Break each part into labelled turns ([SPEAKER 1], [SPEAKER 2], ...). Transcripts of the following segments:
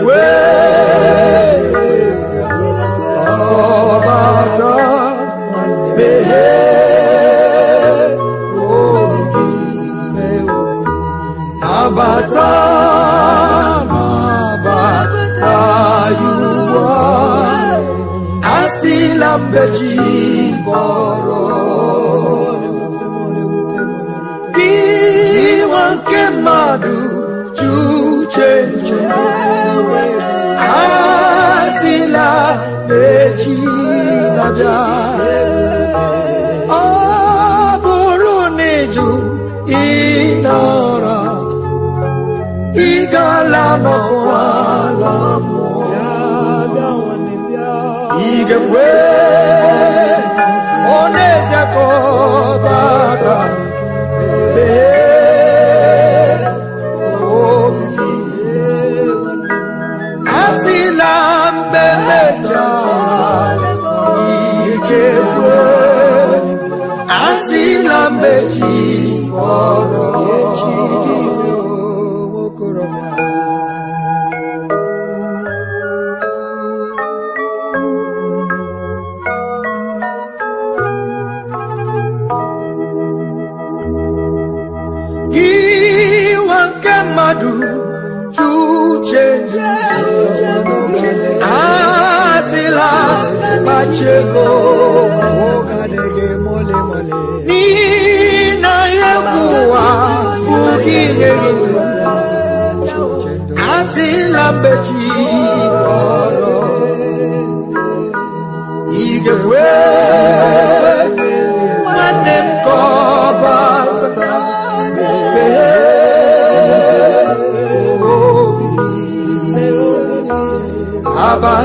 [SPEAKER 1] wee ọ bụrụ na ịjụ ịnara ịgala n'ọkwa ala mụọ ị ga mmadụ uche asịla kpachego n'ihi na ihe bụ ụwa bụghị ihe gị asịla mbechi ọrụ igekwe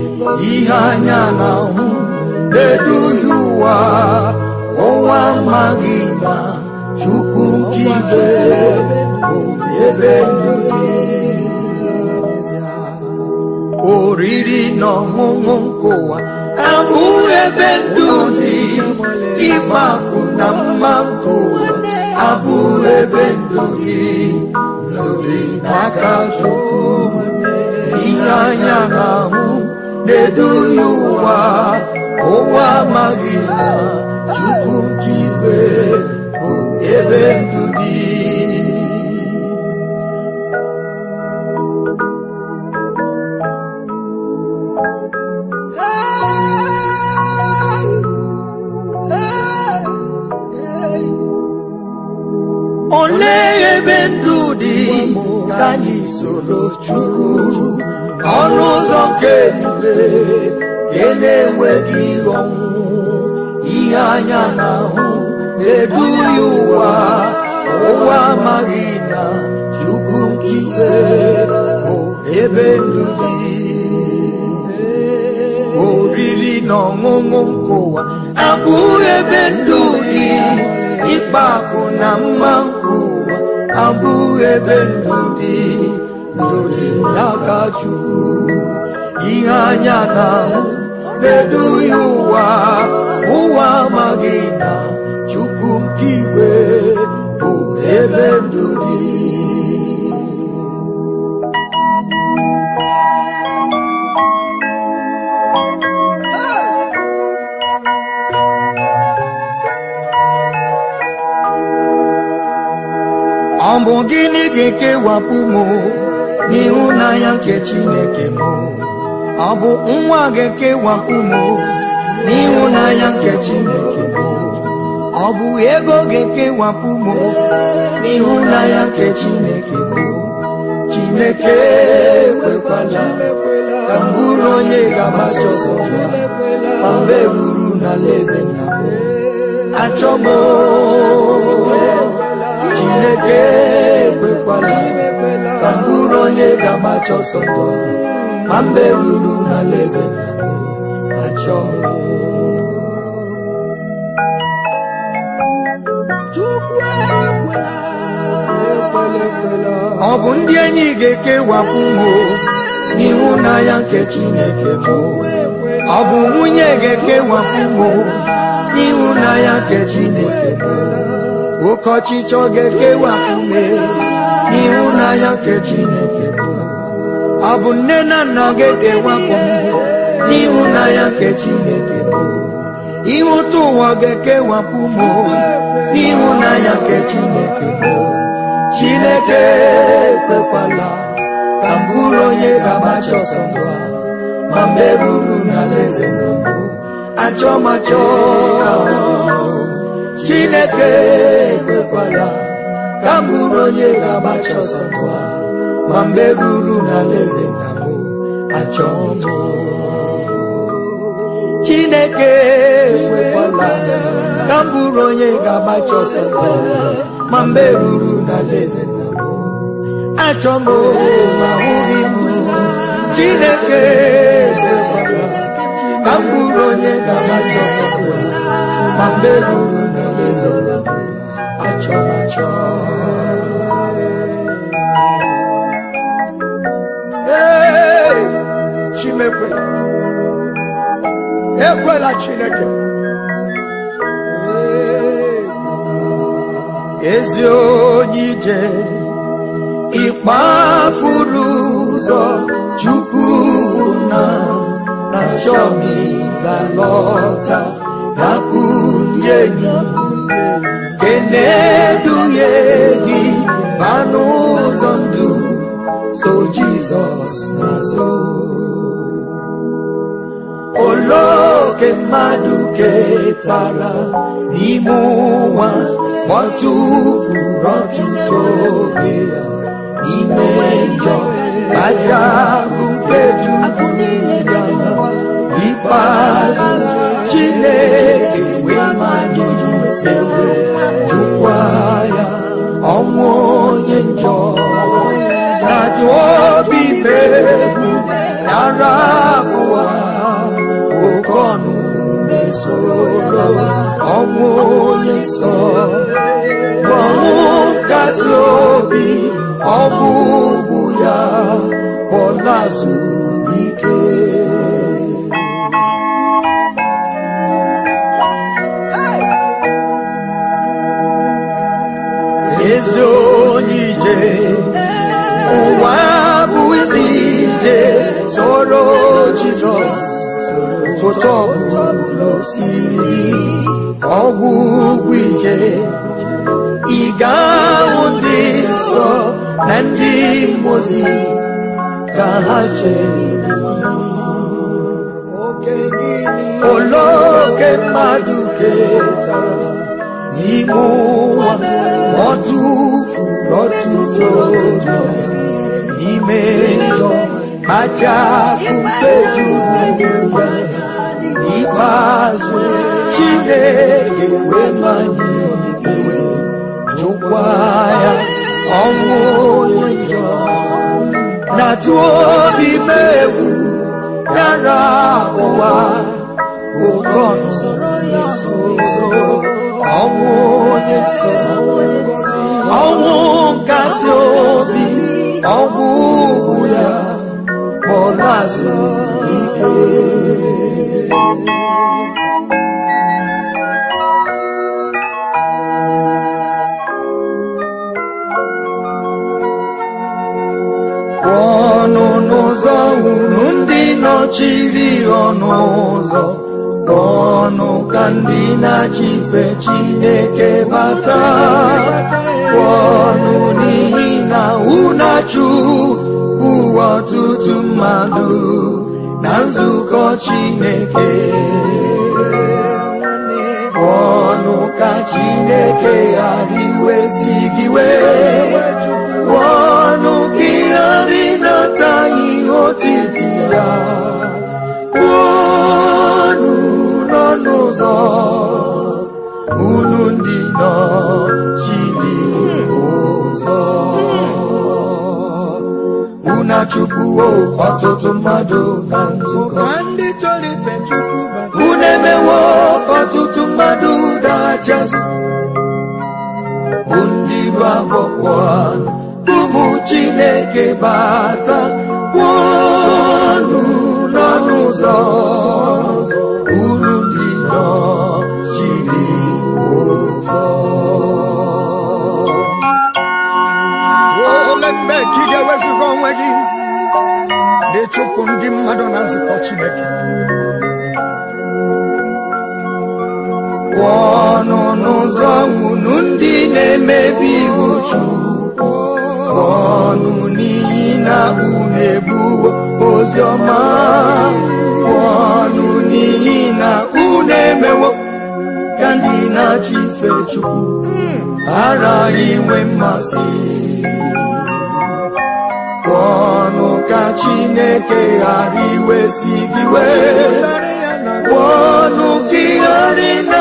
[SPEAKER 1] ihe anya na-ahụ na eduhi ụwa ọnwa amaghị na chukwu nke ike bụ ebe ndụ gị oriri na ọṅụṅụ nke ụwa ebe ndụ gị ịgba na mma nke ụwa ebe ndụ gị n'obi n'aka chukwu ihe anya kedu ihe ụwa ụwa amaghị na chukwu nke igwe bụ ebe ndụ dị olee ebe ndụ dị ka anyị soro chukwu ọnụ ụzọ obe e na-enweghị ihe ihe anya na-ahụ na-edu ụwa ụwa amaghị na chukwu nkiwe bụ ebe ndụ dị oriri na ọṅụṅụ nkụwa ụwa ebe ndụ dị ịkpa akụ na mma nkụwa ebe ndụ dị ndụ dị n'aka chukwu ihe anya na-ahụ na ụwa ụwa amaghị na chukwu nke igwe bụ ebe ndụ dị ọ bụ gịnị ga-ekewapụ m
[SPEAKER 2] n'ịhụnanya nke
[SPEAKER 1] chineke m ọ bụ nwa ga-ekewapụ m n'ịhụnanya nke Chineke bụ ọ bụ ego ga-ekewapụ m n'ịhụnanya nke Chineke bụ Chineke ekwekwala ka mbụrụ onye ga-agbaso ọsọ ma mbe buru na alaeze nna m Chineke ekwekwala ka mbụrụ onye ga-agbaso ọsọ ma mbe ruru na alaeze eh, achọ ọ bụ ndị enyi ga-ekewapụ mụ ịhụnanya oh. nke Chineke bụ ọ bụ nwunye ga-ekewapụ mụ ịhụnanya oh. nke Chineke bụ oke ọchịchọ ga-ekewapụ m ịhụnanya eh. nke Chineke bụ ọ bụ nne na nna gị ga-ewepụ n'ịhụnanya nke Chineke ihe ụtọ ụwa ga-ekewapụ m n'ịhụnanya nke Chineke bụ Chineke ekwekwala ka mbụrụ onye ga-agbacha ọsọ ndụ a ma mgbe ruru n'alaeze na mbụ achọ Chineke ekwekwala ka mbụrụ onye ga-agbacha ọsọ ndụ a ma mgbe ruru n'alaeze na m achọ m chineke ewekwala ka m bụrụ onye ga-agbacha ọsọ ma mgbe ruru n'alaeze na m achọ m ma hụghị m chineke ka m bụrụ onye ga-agbacha ọsọ ma mgbe ruru n'alaeze na ekwela chineke ezi onye ije ịkpafuru ụzọ chukwu na na chọmi ga-alọta hapụ ndị enyi nke tara n'ime ụwa gbọtụfuru ọtụtụ oge ya ime njọ aja ahụ nke juru ya ikpeazụ chineke wee majụjụ sewe jụkwa ya ọnwụ onye njọ na tụọ obi mere nsọ ọnwụ gazi obi ọ bụ ya ọ na-azụ ị ga-ahụ ndị nsọ na ndị mozi ka ha chere Oloke mmadụ ketara n'ime ụwa ọ tụfuru ọtụtụ ụjọ n'ime njọ aja pụfe juru n'ikpeazụ chineke wemanye gị jụkwa ya ọnwụ onye njọ na-atụ obi m ya nara ụwa ụkọ nsoro ụzọ ọnwụ onye nsọ ọnwụ nkasi obi ọnwụ ugwu ya kpọrọ azụ ike na-achịfe chineke bata ọnụ n'ihi na unachu ụwa ọtụtụ mmadụ na nzukọ chineke ọnụ ka chineke ghara iwesi gị wee ọnụ gị ghara ịnata ihe otiti ya chukwuo ọtụtụ mmadụ na nzukọ unu emewo ọtụtụ mmadụ dachazi ndị ibu akpọkpọ ụmụ Chineke bata na-emebi iwu Chukwu ọnụ n'ihi na unu ebuwo ozi ọma ọnụ n'ihi na unu emewo ka ndị na-achị ife Chukwu ara inwe mmasị ọnụ ka Chineke ghara si gị wee ọnụ gị ghara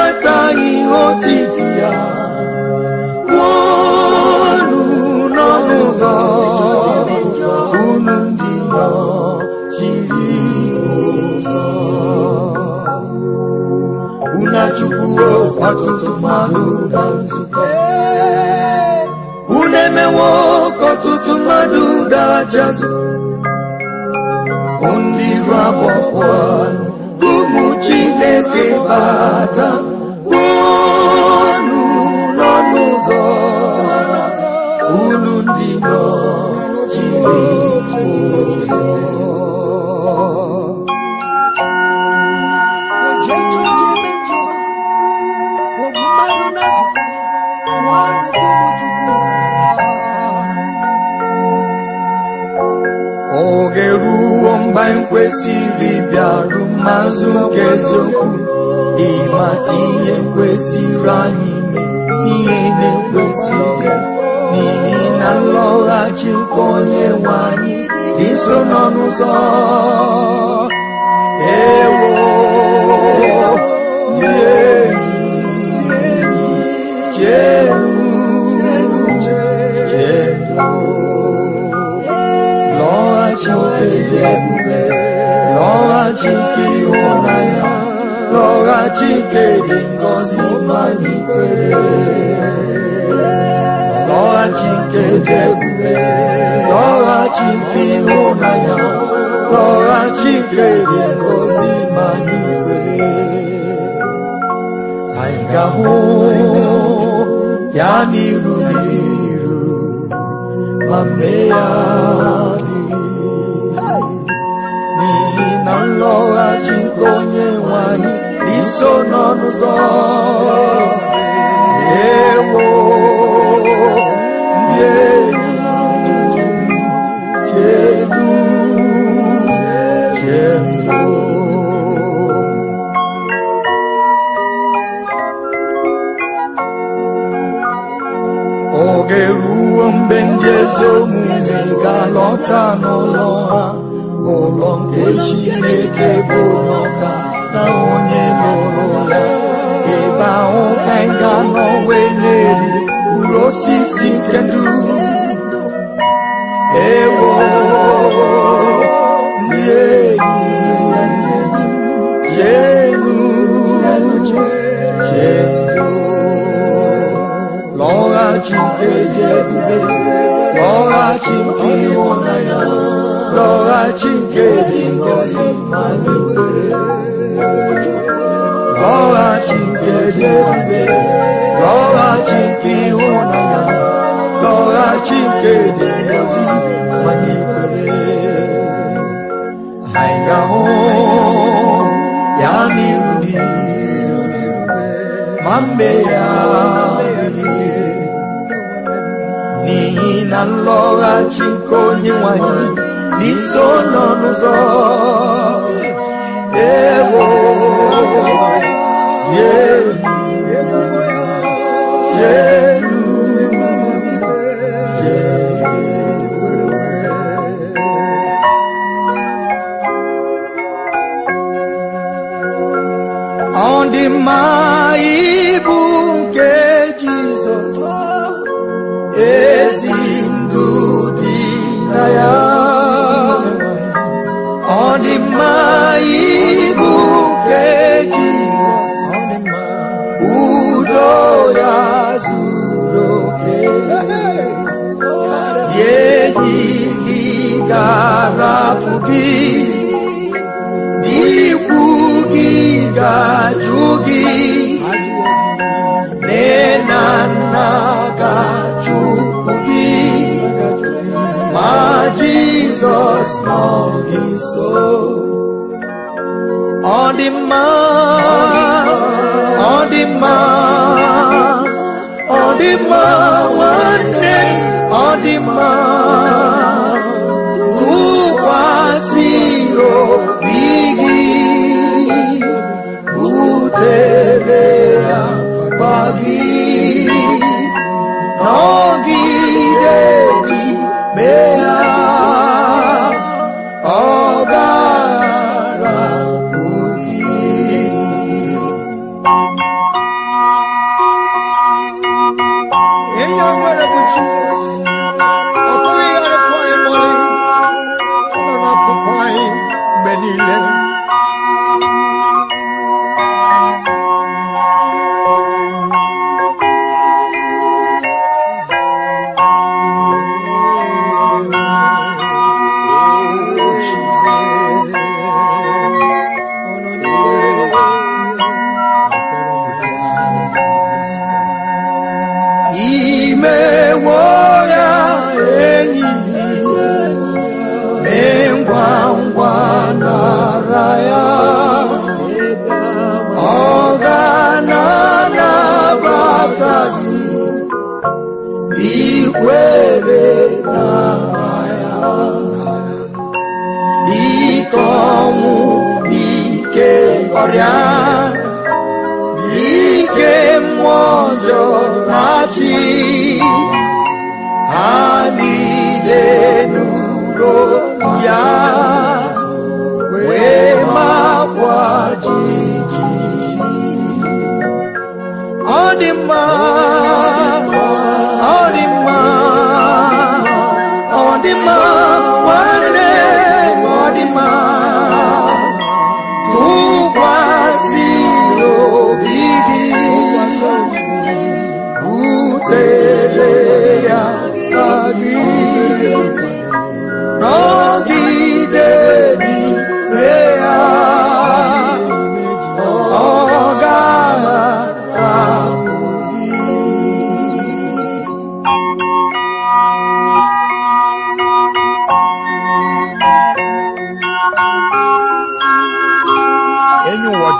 [SPEAKER 1] ọtụtụ mmadụ na unu emewo ka ọtụtụ mmadụ dara chazụ ndị iru abụọ ebube lọghachite ịhụnanya lọghachite dị ngọzi ma dị ebube ịhụnanya dị ngọzi ma anyị ga-ahụ ya n'iru n'iru ma mee ya n'ọnụzọ ụzọ ewo ndị enyi ọdachi nke dị ngozi anyị nwere ọghachi nke dị ebube ọghachi nke ịhụnanya ọghachi nke dị ngozi anyị nwere anyị ga-ahụ ya n'iru n'iru ma mbe ya n'ihi na nlọghachi nke onye nwanyị n'iso nọ n'ụzọ ewo yelu yelu ọ ibu nke Jizọs ezi mơ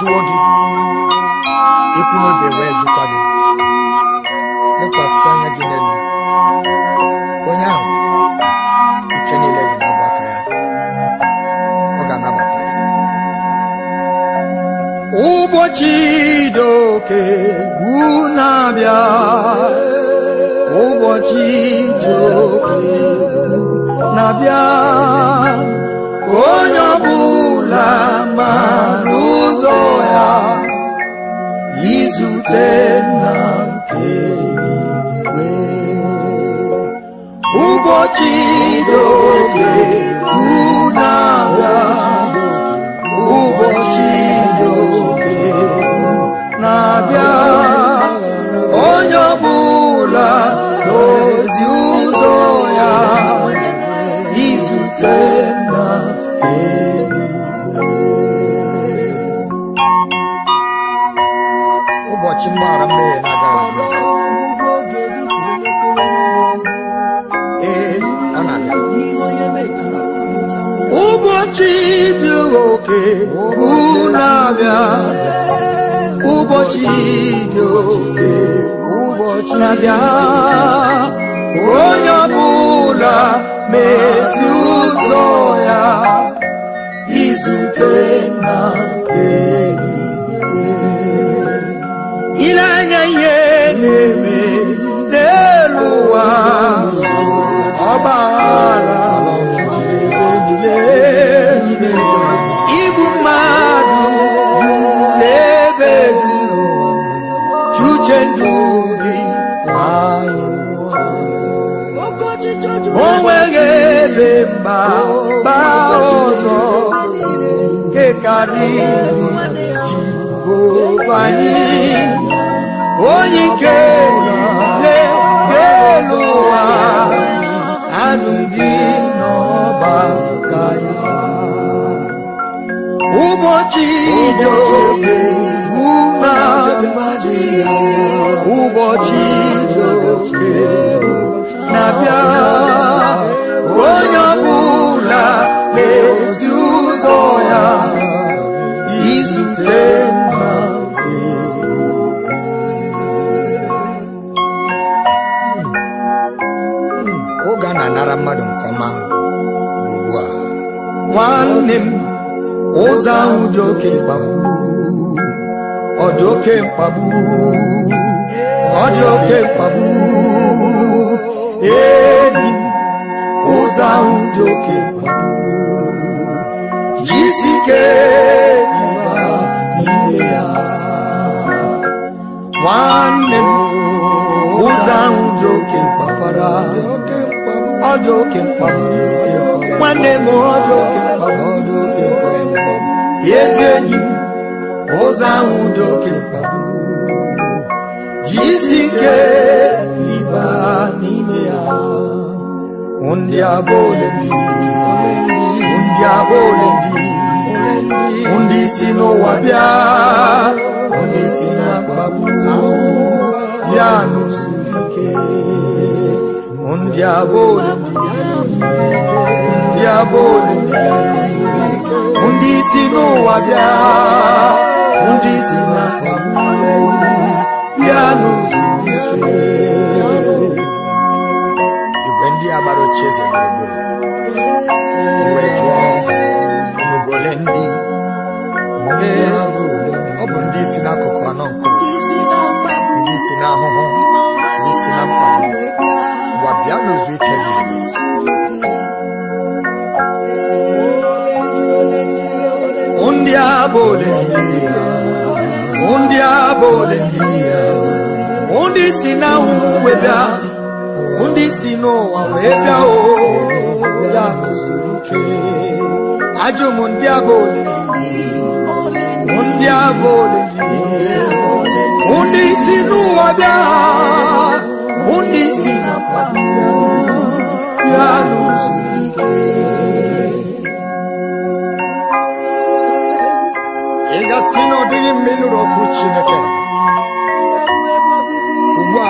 [SPEAKER 1] jụọ gị ekwu n'obe wee jụkwa gị lekwasị anya gị n'elu onye ahụ nke niile dị n'ọbụ aka ya ọ ga-anabata gị ụbọchị doke bu na-abịa ụbọchị doke na-abịa onye ọ la ma n'ụzọ ya izute na nke eluigwe ụbọchị ụbọchị dị na-abịa onye ọbụla na-ezi ụzọ ya izute nna oge a na-anara mmadụ nke ọma ugbu a nwanne m ụzọ ahụ dị oke mkpagbu ọ dị oke mkpagbu ọ dị oke mkpagbu enyi ụzọ ahụ dị oke mkpagbu jisi ike ịba n'ime ya nwanne m ụzọ ahụ dị oke mkpafara ọ dị oke mkpagbu nwanne m ọ dị oke mkpagbu ezi enyi m ụzọ ahụ dị oke mkpa nke ibe n'ime ya ndị abụ ole ndị ndị ndị ndị si n'ụwa bịa ndị si na mkpagbu bịa n'usoro ike ndị abụ ole ndị abụ ndị si n'ụwa bịa ndị si na mkpagbu ya n'usoro igwe ndị agbara ochie eze gburugburu iwe jụọ ndị ọ bụ ndị isi n'akụkụ anọ nke ndị isi n'ahụhụ ndị isi na gwa bịa ike ndị ole ndị ndị si n'anwụ wee bịa ndị si n'ụwa wee bịa oo ya n'usoro ike ajụ m ndị abụ
[SPEAKER 2] olili
[SPEAKER 1] ndị abụ olili ndị si n'ụwa bịa ndị si na mkpado ya n'usoro ike ị gasị na ọ dịghị mma ịnụrụ Chineke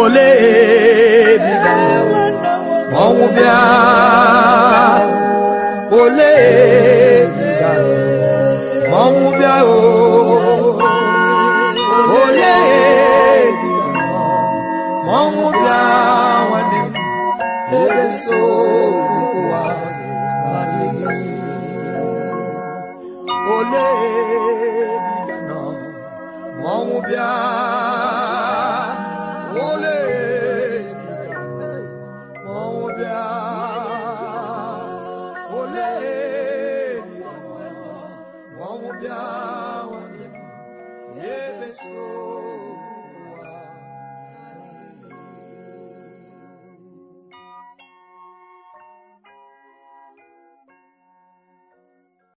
[SPEAKER 1] ole ebiga ọnwụ bịa